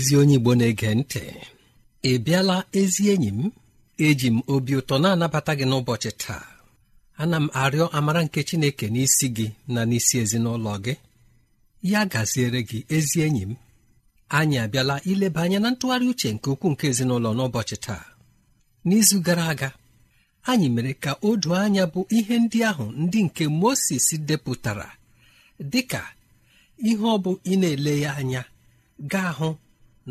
ezi onye Igbo na-ege ntị ị bịala ezi enyi m eji m obi ụtọ na-anabata gị n'ụbọchị taa ana m arịọ amara nke Chineke n'isi gị na n'isi ezinụlọ gị ya gaziere gị ezi enyi m anyị abịala ileba anya na ntụgharị uche nke ukwuu nke ezinụlọ n'ụbọchị taa n'izu gara aga anyị mere ka o anya bụ ihe ndị ahụ ndị nke Mosis depụtara dịka ihe ọ bụ ị na-ele ya anya gaa hụ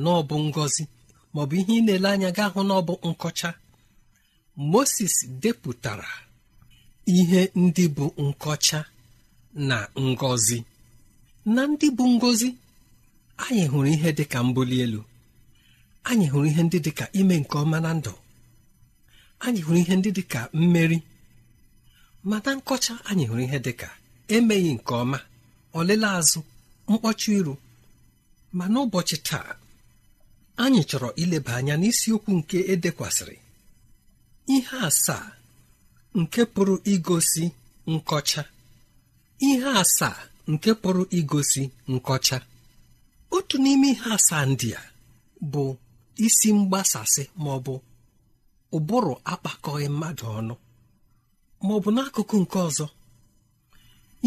na ọ bụ maọbụ ihe ị na-ele anya ga hụ na ọ bụ nkọcha moses depụtara ihe ndị bụ nkọcha na ngozi. na ndị bụ ngozi, anyị hụrụ ihe dị ka mbuli elu anyị hụrụ ihe ndị dị ka ime nke ọma na ndụ anyị hụrụ ihe ndị dị ka mmeri ma na nkọcha anyị hụrụ ihe dị ka emeghị nke ọma ọlele azụ mkpọcha iru ma n'ụbọchị taa anyị chọrọ ileba anya n'isiokwu nke edekwasịrị ihe asaa nke pụrụ igosi nkọcha ihe asaa nke pụrụ igosi nkọcha otu n'ime ihe asaa ndị a bụ isi mgbasasị ma ọ bụ ụbụrụ akpakọghị mmadụ ọnụ ma ọ bụ n'akụkụ nke ọzọ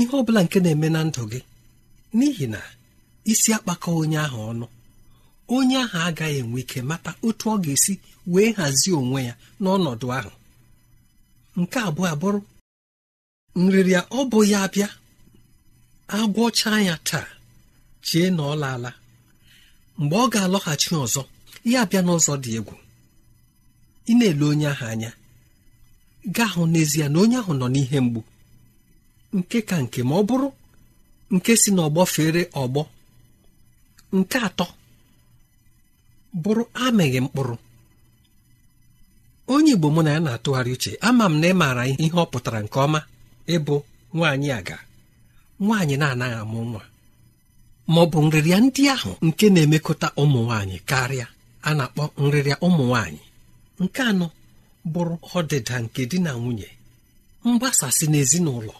ihe ọbụla nke na-eme na ndụ gị n'ihi na isi akpakọ onye ahụ ọnụ onye ahụ agaghị enwe ike mata otu ọ ga-esi wee hazie onwe ya n'ọnọdụ ahụ nke abụọ abụrụ nrịrịa ọ bụ ya bịa agwọcha ya taa chie na ọ laala mgbe ọ ga-alọghachi ọzọ ya abịa n'ụzọ dị egwu ị na-ele onye ahụ anya gaa hụ n'ezie na onye ahụ nọ n'ihe mgbu nke ka nke ma ọ bụrụ nke si n'ọgbọ fere ọgbọ nke atọ bụrụ amịghị mkpụrụ onye igbo mụ na ya na-atụgharị uche ama m na ị maara ihe ọ pụtara nke ọma ịbụ nwaanyị aga nwaanyị na-anaghị amụ nwa ma ọ bụ nrịrịa ndị ahụ nke na-emekọta ụmụ nwaanyị karịa a na-akpọ nrịrịa ụmụ nwaanyị nke anọ bụrụ ọdịda nke di na nwunye mgbasasị n'ezinụlọ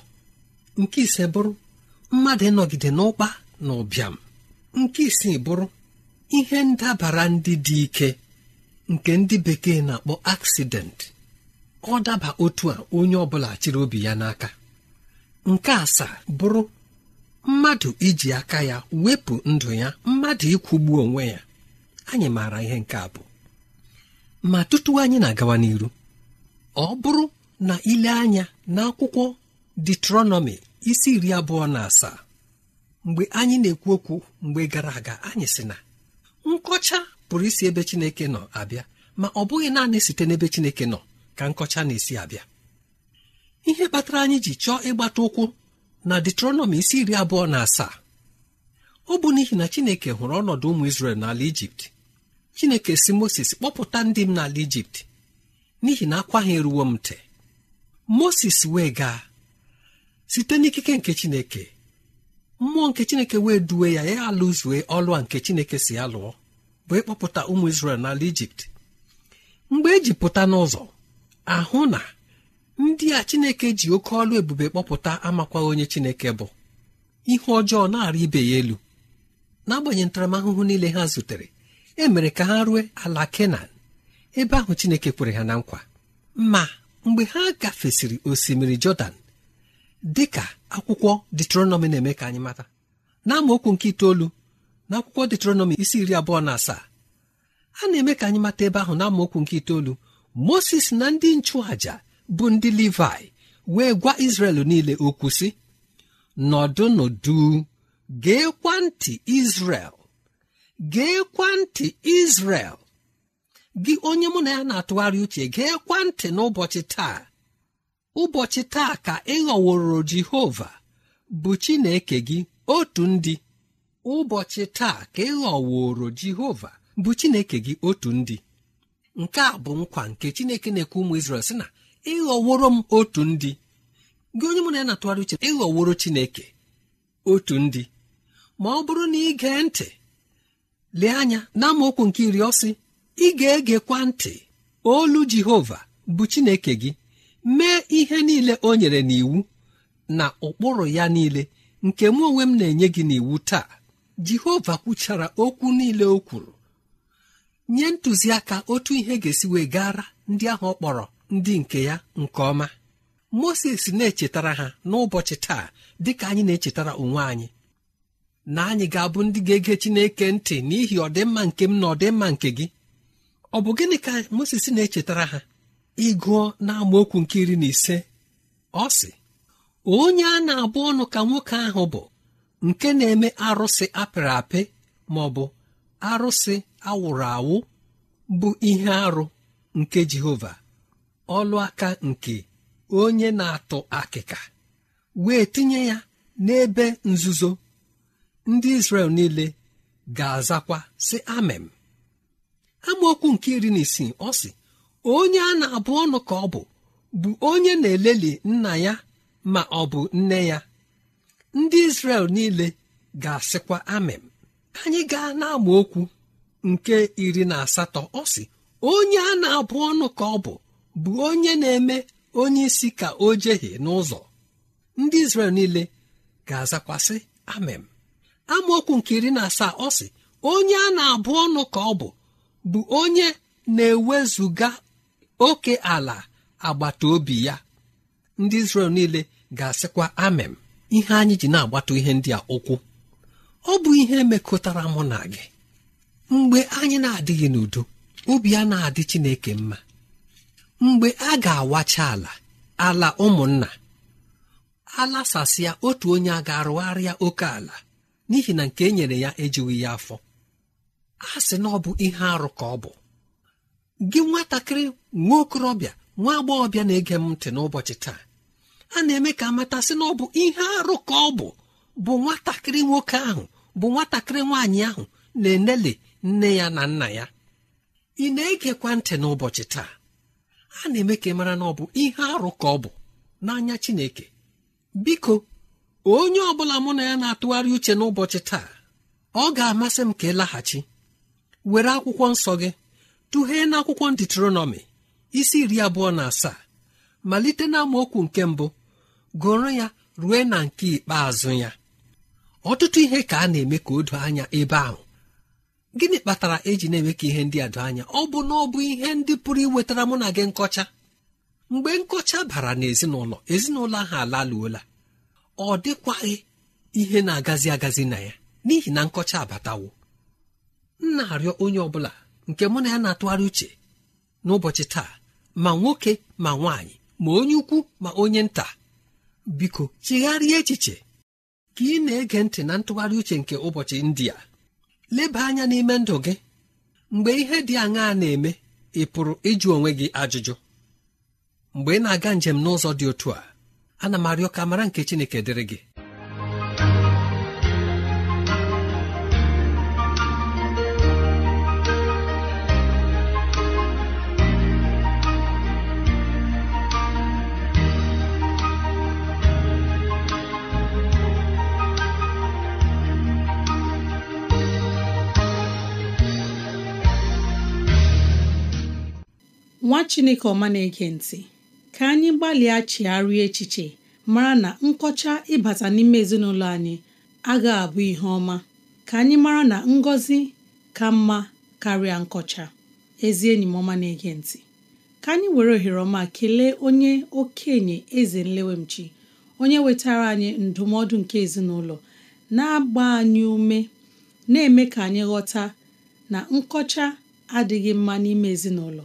nke ise bụrụ mmadụ ịnọgide n'ụkpa na ụbịam nke isii bụrụ ihe ndabara ndị dị ike nke ndị bekee na-akpọ aksident ọ daba otu a onye ọbụla chịrị obi ya n'aka nke asaa bụrụ mmadụ iji aka ya wepụ ndụ ya mmadụ ịkwụgbu onwe ya anyị maara ihe nke a bụ ma tutu anyị na-agawa n'iru ọ bụrụ na ile anya n'akwụkwọ detronomi isi iri abụọ na asaa mgbe anyị na-ekwu okwu mgbe gara aga anyị sị na nkọcha pụrụ isi ebe chineke nọ abịa ma ọ bụghị naanị site n'ebe chineke nọ ka nkọcha na-esi abịa ihe kpatara anyị ji chọọ ịgbata ụkwụ na detronọmi isi iri abụọ na asaa ọ bụ n'ihi na chineke hụrụ ọnọdụ ụmụ isrel n'ala ijipt chineke si moses kpọpụta ndị m n'ala ijipt n'ihi na akwa ha eruwo m ntị moses wee gaa site n'ikike nke chineke mmụọ nke chineke wee duwe ya ya alụzue ọlụ a nke chineke si ya lụọ bụ ịkpọpụta ụmụ isrel n'ala ijipt mgbe e ji pụta n'ụzọ ahụ na ndị a chineke ji oke ọlụ ebube kpọpụta amakwa onye chineke bụ ihe ọjọọ na-arị ibe ya elu n'agbanyeghị ntaramahụhụ niile ha zutere e mere ka ha rue ala kenan ebe ahụ chineke kwere ha na nkwa ma mgbe ha gafesịrị osimiri jọdan Dịka ka akwụkwọ detronọmi na-eme ka anyị mata na nke itoolu na akwụkwọ detronọmi isi iri abụọ na asaa a na-eme ka anyị mata ebe ahụ na amaokwu nke itoolu moses na ndị nchụàja bụ ndị levi wee gwa izrel niile okwu sị nọdụ nọdụ geekwa ntị izrel geekwa ntị izrel gị onye mụ na ya na-atụgharị uche geekwa ntị n'ụbọchị taa ụbọchị taa ka ịghọworo jehova bụ chineke gị otu ndị ụbọchị taa ka ịghọworo jehova bụ chineke gị otu ndị nke a bụ nkwa nke chineke na-ekwe ụmụ Izrel sị na ịghọworo m otu ndị gị onye mụ na ya na uche ịghọworo chineke otu ndị ma ọ bụrụ na ị gee ntị lee anya na nke iri ọsị ị ga-egekwa ntị olu jehova bụ chineke gị mee ihe niile o nyere n'iwu na ụkpụrụ ya niile nke mụ onwe m na-enye gị n'iwu taa jehova kwuchara okwu niile o kwuru nye ntụziaka otu ihe ga-esi wee gara ndị ahụ ọ kpọrọ ndị nke ya nke ọma moses na-echetara ha n'ụbọchị taa dị ka anyị na-echetara onwe anyị na anyị ga-abụ ndị ga-ege chineke ntị n'ihi ọdịmma nke m na ọdịmma nke gị ọ bụ gịnị ka moses na-echetara ha ịgụọ na amaokwu nke iri na ise ọ sị onye a na-abụ ọnụ ka nwoke ahụ bụ nke na-eme arụsị apịrị apị ma ọ bụ arụsị awụrụ awụ bụ ihe arụ nke Jehova ọlụ aka nke onye na-atụ akịka wee tinye ya n'ebe nzuzo ndị Izrel niile ga-azakwa sị amem amaokwu nke iri na isii ọ sị onye a na-abụ ọnụ ka ọ bụ bụ onye na-eleli nna ya ma ọ bụ nne ya ndị Izrel niile ga-asịkwa amem anyị gaa na okwu nke iri na asatọ ọ sị onye a na-abụ ọnụ ka ọ bụ bụ onye na-eme onye isi ka o jehie n'ụzọ ndị Izrel niile ga-azakwasị amem amaokwu nke iri na asaa ọ sị onye a na-abụ ọnụ ka ọ bụ bụ onye na-ewezuga oke ala agbata obi ya ndị Izrel niile ga-asịkwa amem ihe anyị ji na-agbata ihe ndị a ụkwụ ọ bụ ihe mekọtara mụ na gị mgbe anyị na-adịghị n'udo obi a na-adị Chineke mma mgbe a ga-awacha ala ala ụmụnna alasasịa otu onye a ga-arụgharịa oke ala n'ihi na nke e nyere ya ejighị ya afọ a sị na ọ bụ ihe arụ ka ọ bụ gị nwatakịrị nwa okorobịa nwa agbọghọbịa na-ege m ntị n'ụbọchị taa a na-eme ka amatasị na ọ bụ ihe arụ ka ọ bụ bụ nwatakịrị nwoke ahụ bụ nwatakịrị nwaanyị ahụ na-enele nne ya na nna ya ị na-egekwa ntị n'ụbọchị taa a na-eme ka ị mara na ọ bụ ihe arụ ka ọ bụ n'anya Chineke biko onye ọ bụla mụ na ya na-atụgharị uche n'ụbọchị taa ọ ga-amasị m ka ị laghachi were akwụkwọ nsọ gị tụghee n'akwụkwọ akwụkwọ isi iri abụọ na asaa malite na amaokwu nke mbụ gụrụ ya rue na nke ikpeazụ ya ọtụtụ ihe ka a na-eme ka o doo anya ebe ahụ gịnị kpatara eji na-eme ka ihe ndị a doo anya ọ bụ na ọ bụ ihe ndị pụrụ iwetara mụ na gị nkọcha mgbe nkọcha bara n'ezinụlọ ezinụlọ ahụ alaluola ọ dịkwaghị ihe na-agazi agazi na ya n'ihi na nkọcha abatawo m na-arịọ onye ọ bụla nke mụ na ya na-atụgharị uche n'ụbọchị taa ma nwoke ma nwaanyị ma onye ukwu ma onye nta biko chigharịa echiche ka ị na-ege ntị na ntụgharị uche nke ụbọchị ndị leba anya n'ime ndụ gị mgbe ihe dị aṅaa na-eme ị pụrụ ịjụ onwe gị ajụjụ mgbe ị na-aga njem n'ụzọ dị otu a ana m arịọ ka mara nke Chineke dịrị gị nwa chineke ọma na-ege ntị ka anyị gbalịa chigharịa echiche mara na nkọcha ịbata n'ime ezinụlọ anyị agaghị abụ ihe ọma ka anyị mara na ngọzi ka mma karịa nkọcha ezi enyi m ọma na-ege ntị ka anyị were ohere ọma kelee onye okenye eze nlewemchi onye wetara anyị ndụmọdụ nke ezinụlọ na-agba anyị ume na-eme ka anyị ghọta na nkọcha adịghị mma n'ime ezinụlọ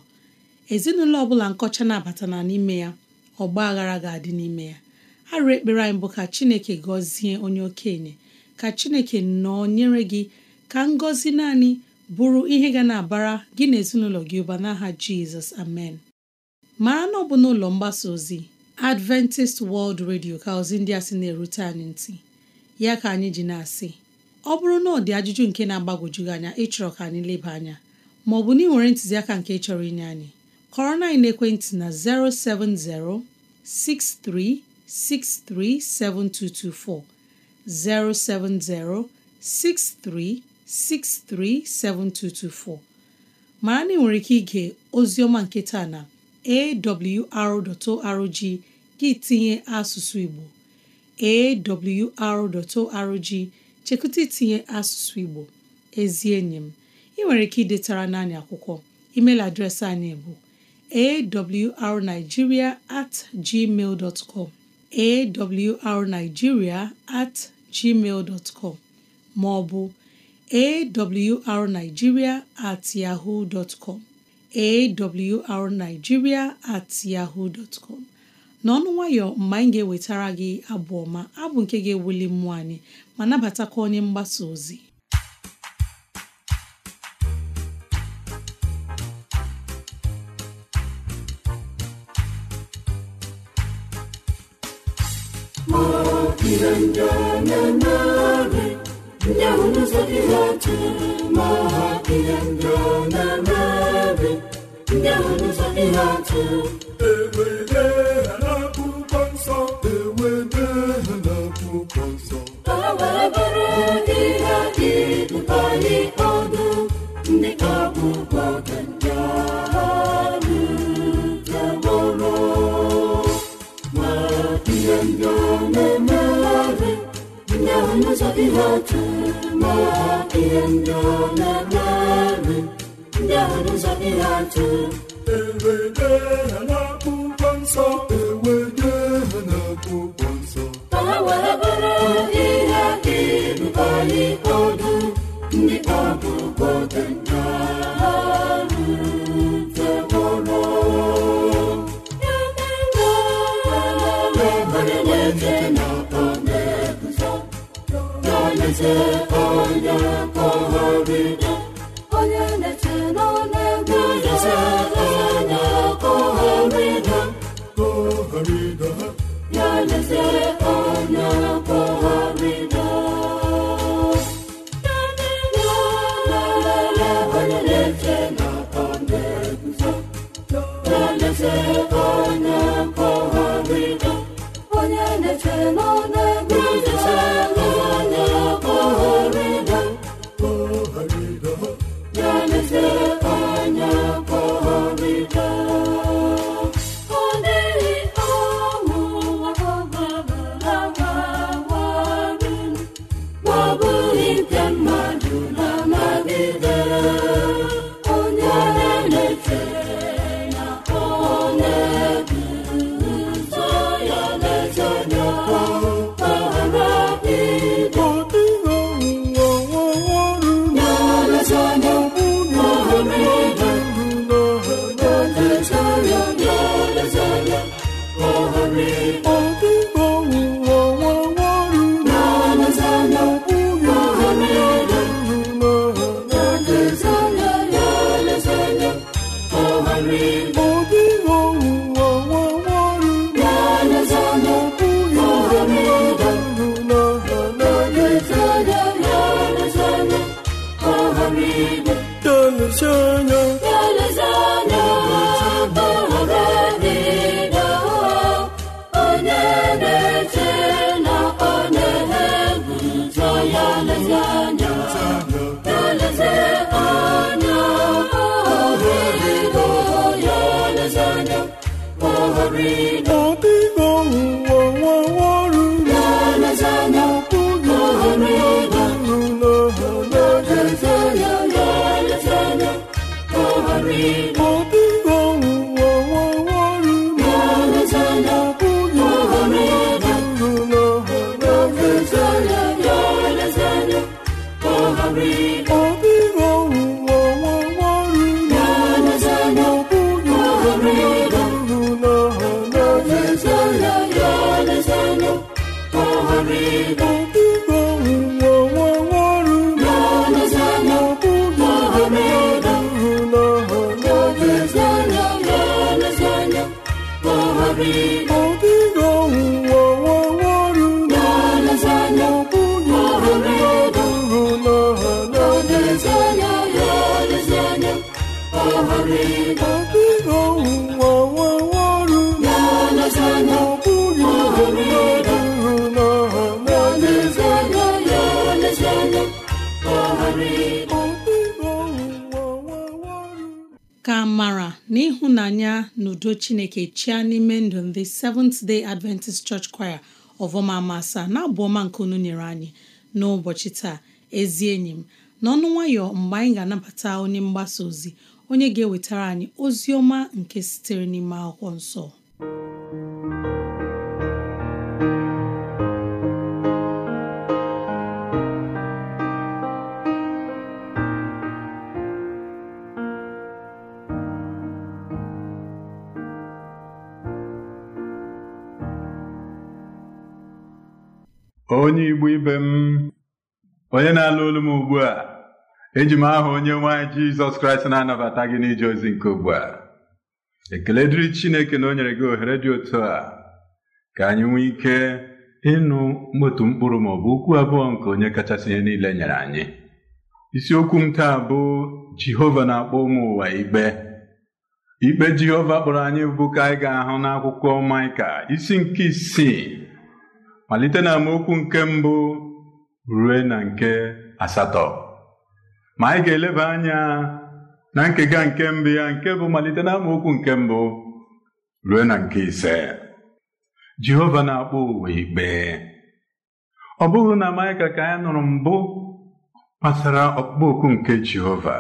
ezinụlọ ọbụla nkọcha na-abata na n'ime ya ọgba aghara ga-adị n'ime ya arụ ekpere anyị bụ ka chineke gọzie onye okenye ka chineke nyere gị ka ngọzi naanị bụrụ ihe ga na-abara gị na ezinụlọ gị ụba n'aha jizọs amen mara na ọ bụ n'ụlọ mgbasa ozi adventist world radio ka ozi ndị a sị na-erute anyị ntị ya ka anyị ji na-asị ọ bụrụ na ọ dị ajụjụ nke na-agbagwoju gị anya ịchọrọ ka anyị leba anya maọbụ na ị nwere ntụziaka nke chọrọ inye anyị kọrọ na ekwentị na 070 6363 7224 070 6363 7224 mara na ị nwere ike ozi ọma nke taa na awr.org gị tinye asụsụ Igbo awr.org chekwute tinye asụsụ Igbo ezi enyi m ị nwere ike idetara n'anyị akwụkwọ email adreesị anyị bụ awrnigeria at gmail com awrnigeria at gmail com ma ọ bụ awrnigeria at yahoo dot com awrnigeria at yahoo com n'ọnụ nwayọ mgbe anyị ga-ewetara gị abụ ọma abụ nke ga-ewuli mmụọ anyị ma nabatakwa onye mgbasa ozi fiandraananare miahona na mahafiandrananare miahona zakiraty adịghị otu ma ihe ndị ọ na-eme ndị ahụ n'ụzọ dịghị atụ n'igwe tonu Glory, udo chineke chia n'ime ndụ ndị Seventh Day Adventist Church Choir ọvọma masa na abụọma nke unu nyere anyị n'ụbọchị taa ezi enyi m n'ọnụ nwayọ mgbe anyị ga-anabata onye mgbasa ozi onye ga-ewetara anyị ozi ọma nke sitere n'ime akwụkwọ nsọ onye Igbo ibe m onye na-alụ olu m ugbu a eji m aha onye nwanyị Jizọs Kraịst na-anabata gị n'ije ozi nke ugbu a ekele dịrị Chineke na o nyere gị ohere dị otu a ka anyị nwee ike ịnụ otu mkpụrụ ma ọ bụ okwu abụọ nke onye kachasị ihe niile nyere anyị isiokwu m taa bụ Jehova na-akpọ ụmụ ụwa ikpe ikpe Jehova kpọrọ anyị bụ ka anyị ga-ahụ n'akwụkwọ Maịka isi nke isii malite na amaokwu nke mbụ rue na nke asatọ ma anyị ga-eleba anya na nkega nke mbụ ya nke bụ malite na amaokwu nke mbụ rue na nke ise Jehova na-akpọ ụwa ikpe ọ bụghị na Maịka ka anyị nụrụ mbụ gbasara ọkpụkpọ oku nke Jehova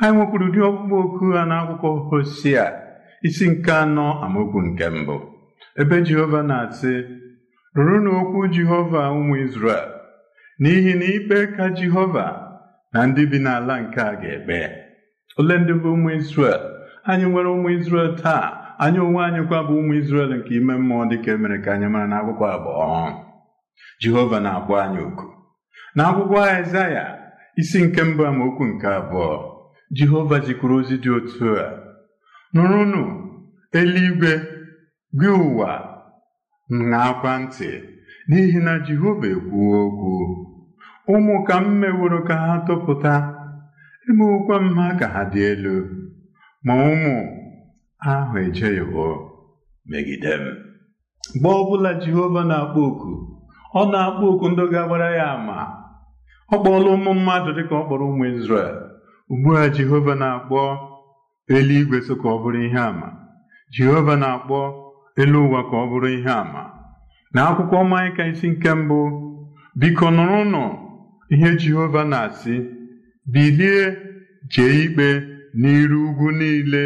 anyị nwekwuru ụdị ọkpụkpọ oku ha n'akwụkwọ Hosea isi nke anọ amaokwu nke mbụ ebe Jehova na-asị Rụrụnụ okwu Jehova ụmụ Izrel n'ihi na ikpe ka Jehova na ndị bi n'ala nke a ga-ekpe ole ndị bụ ụmụ Izrel anyị nwere ụmụ Izrel taa anyị onwe anyị kwa bụ ụmụ Izrel nke ime mmụọ dịka emere ka anyị mara n'akwụkwọ abụọ Jehova na-akpọ anyị oku n'akwụkwọ Aịzaya isi nke mbụ amaokwu nke abụọ Jehova jikwuru ozi dị otu a nụrụnụ eluigwe gị ụwa ṅaakwa ntị n'ihi na Jehova ekwuo okwu ụmụ ka m meworo ka ha tụpụta emewokwa m ha ka ha dị elu ma ụmụ ahụ ejeghịwo megide m mgbe ọbụla Jehova na-akpọ oku ọ na-akpọ oku ndị ga-agbara ya ama ọ kpọọla ụmụ mmadụ dịka ọ kpọrọ ụmụ Izrel ugbu a Jehova na-akpọ eluigwe so ka ọ bụrụ ihe àmà Jehova na-akpọ elu ụwa ka ọ bụrụ ihe àmà na akwụkwọ Maịka isi nke mbụ biko nụrụnụ ihe Jehova na-asị bilie jee ikpe n'iru ugwu niile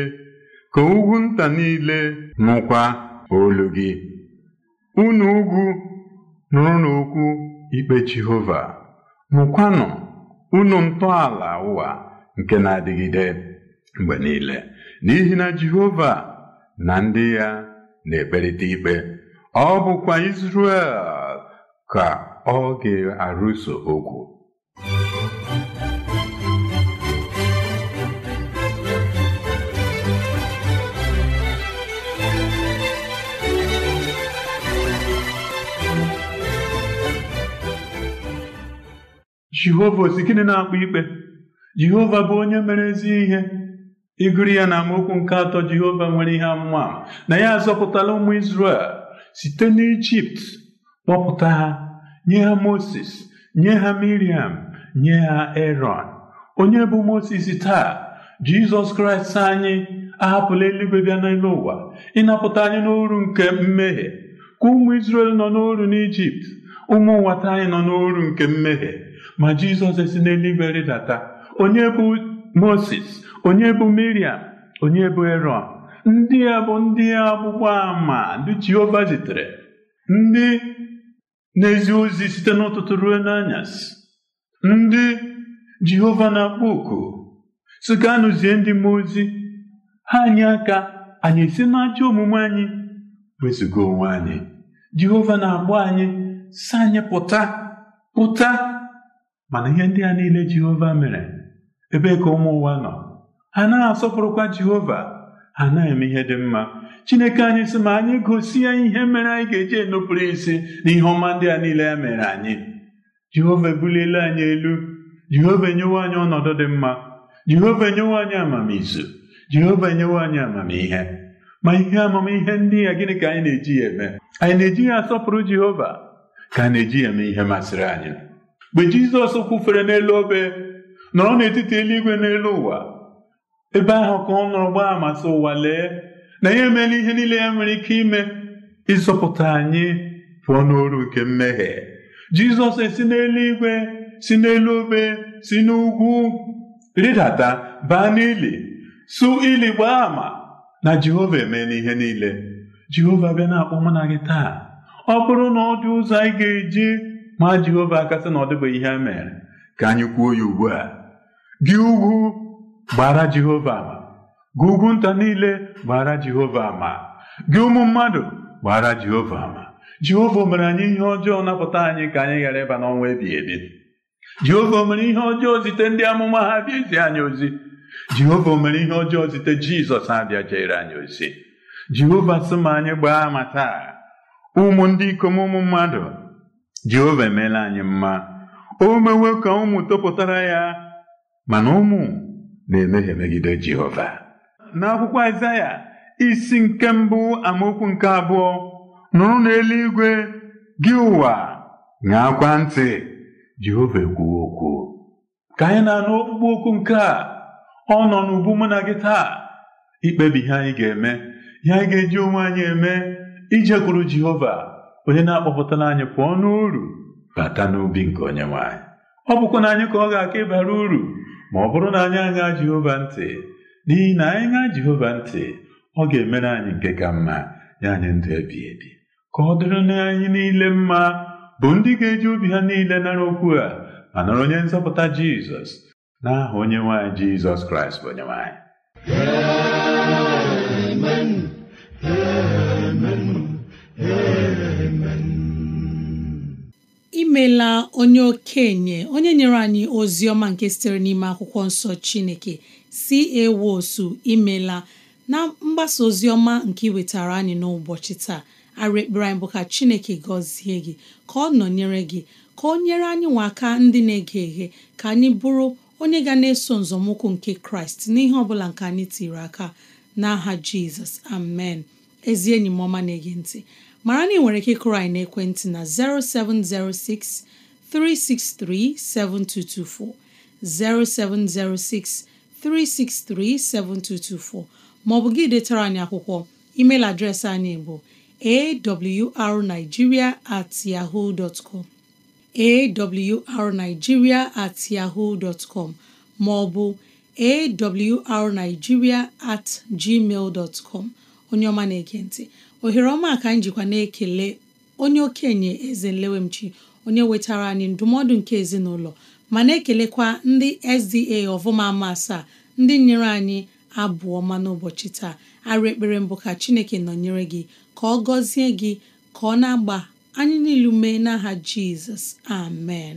ka ugwu nta niile nụkwa olu gị unu ugwu nụrụnụ okwu ikpe Jehova nụkwanụ unu ntọala ụwa nke na-adịgide mgbe niile n'ihi na Jehova na ndị ya na-ekperịta ikpe ọ bụkwa Izrel ka ọ ga-arụso okwu Jehova osi gịnị na akpụ ikpe Jehova bụ onye mere ezi ihe ịgụrụ ya na amaokwu nke atọ Jehova nwere ihe amụma na ya azọpụtala ụmụ Izrel site n'Ijipt kpọpụta ha nye ha Moses nye ha Miriam nye ha Eron. onye bụ Moses taa Jizọs Kraịst anyị ahapụla eluigwe bịa n'elu ụwa ịnapụta anyị n'oru nke mmehie ka ụmụ Izrel nọ n'oru n'Ijipt ụmụ nwata anyị nọ n'oru nke mmehie ma Jizọs esi n'eluigwe rịdata onye bụ Moses onye bụ Miriam onye bụ ero ndị a bụ ndị agbụgba ama ndị Jehova zitere ndị na-ezi ozi site n'ụtụtụ ruo n'anyasị ndị Jehova na-akpọ oku si ka anụzie ndị mmụọ ozi ha anyị aka anyị esi n'ajọ omume anyị wezụga onwe anyị Jehova na-agba anyị si anyị pụta pụta mana ihe ndị a niile Jehova mere ebee ka ụmụ ụwa nọ ha na-asọpụrụkwa Jehova ha na-eme ihe dị mma Chineke anyị sị ma anyị gosi ihe mere anyị ga-eji enupụrụ isi na ihe ọma ndị a niile ya mere anyị Jehova ebuliela anyị elu Jehova enyewe anyị ọnọdụ dị mma Jehova enyewe anyị amamizu Jehova enyewe anyị amamihe ma ihe amamihe ndị a gịnị ka anyị na-eji ya eme anyị na-eji ya asọpụrụ Jehova ka a na-eji ya eme ihe masịrị anyị mgbe Jizọs kwufere n'elu obe nọrọ n'etiti eluigwe n'elu ụwa ebe ahụ ka ọ nọrọ gbaa ama sị ụwa lee na ya emeela ihe niile ya nwere ike ime ịzọpụta anyị pụọ n'oru nke mmehie jizọs esi n'eluigwe si n'elu obe si n'ugwu rịdata baa n'ili su ili gbaa ama na jehova emeela ihe niile jehova bịa na-akpọ mụ na gị taa ọ bụrụ na ọ dị ụzọ anyị ga-eji ma jehova akasị na ọ dịbeghị ihe mere ka anyị kwuo ya ugbu a gị ugwu gbara Jehova ama gị ugwu nta niile gbara Jehova ama gị ụmụ mmadụ gbara Jehova ama Jehova mere anyị ihe ọjọọ napụta anyị ka anyị ghara ịba n'ọnwa ebighị ebi Jehova mere ihe ọjọọ zite ndị amụma ha bịa ezi anyị ozi Jehova mere ihe ọjọọ zite Jizọs abịa jere anyị ozi Jehova sị ma anyị gbaa ama taa ụmụ ndị ikom ụmụ mmadụ Jehova emeela anyị mma o mewe ka ụmụ topụtara ya mana ụmụ na-emehie megide Jehova n'akwụkwọ Aịzaya isi nke mbụ amaokwu nke abụọ nụrụ n'eluigwe gị ụwa ṅaakwa ntị Jehova ekwuwo okwu ka anyị na-anụ okpukpe okwu nke a ọ nọ n'ubu mụ na gị taa ikpebi ihe anyị ga-eme ihe anyị ga-eji onwe anyị eme ijekwuru Jehova onye na-akpọpụtara anyị pụọ n'uru bata n'obi nke onye nwanyị. ọ bụkwa na anyị ka ọ ga-aka ịbara uru ma ọ bụrụ na anyị aṅa Jehova ntị n'ihi na anyị ṅaa Jehova ntị ọ ga-emere anyị nke ka mma ya anyị ndụ ebi ebi ka ọ dịrị na anyị niile mma bụ ndị ga-eji obi ha niile nara okwu a ma nọrọ onye nzọpụta Jizọs na aha onye nwanyị Jizọs Kraịst bụ onye nwaanyị. imela onye okenye onye nyere anyị ozi ọma nke sitere n'ime akwụkwọ nsọ chineke si ewosu imela na mgbasa ozi ọma nke iwetara anyị n'ụbọchị taa arụ ekpere anyị bụ ka chineke gọzie gị ka ọ nọnyere gị ka ọ nyere anyị nwa aka ndị na-ege eghe ka anyị bụrụ onye ga na-eso nzọmụkwụ nke kraịst n'ihe ọ bụla nke anyị tiri aka n'aha jizọs amen ezi enyi m ọma na-ege ntị mara na ị nwere ike ịkụrụ anyị na 0706 363 7224 maọbụ gị detara anyị akwụkwọ email adreesị anyị bụ awrnigeria at yahoo com awrnigeria at yahoo com maọbụ awrnigeria at gmail dot com onye ọma na-ekentị ohere ọma ka njikwa na-ekele onye okenye eze nlewemchi onye wetara anyị ndụmọdụ nke ezinụlọ ma na-ekelekwa ndị SDA ọvụma ama asaa ndị nyere anyị abụọ ọma n'ụbọchị taa arụ ekpere mbụ ka Chineke nọnyere gị ka ọ gọzie gị ka ọ na-agba anyị niilu mee n'aha Jizọs amen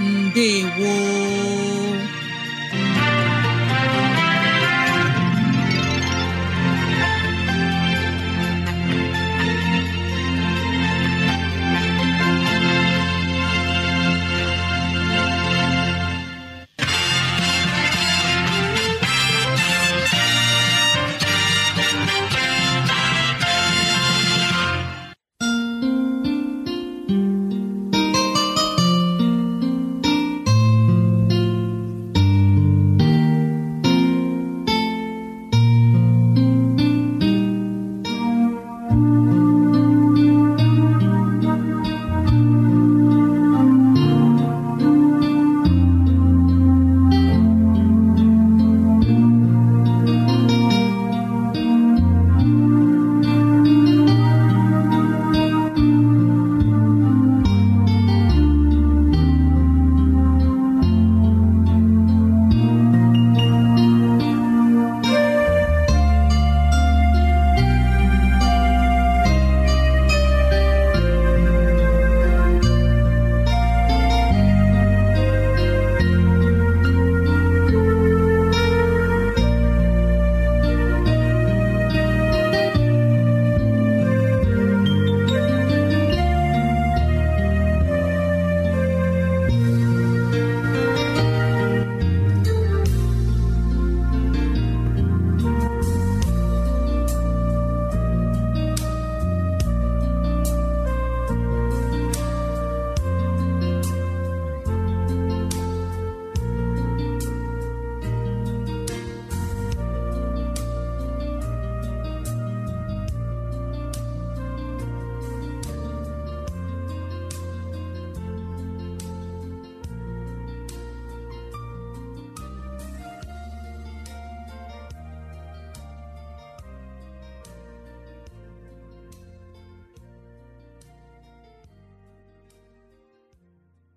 ndewo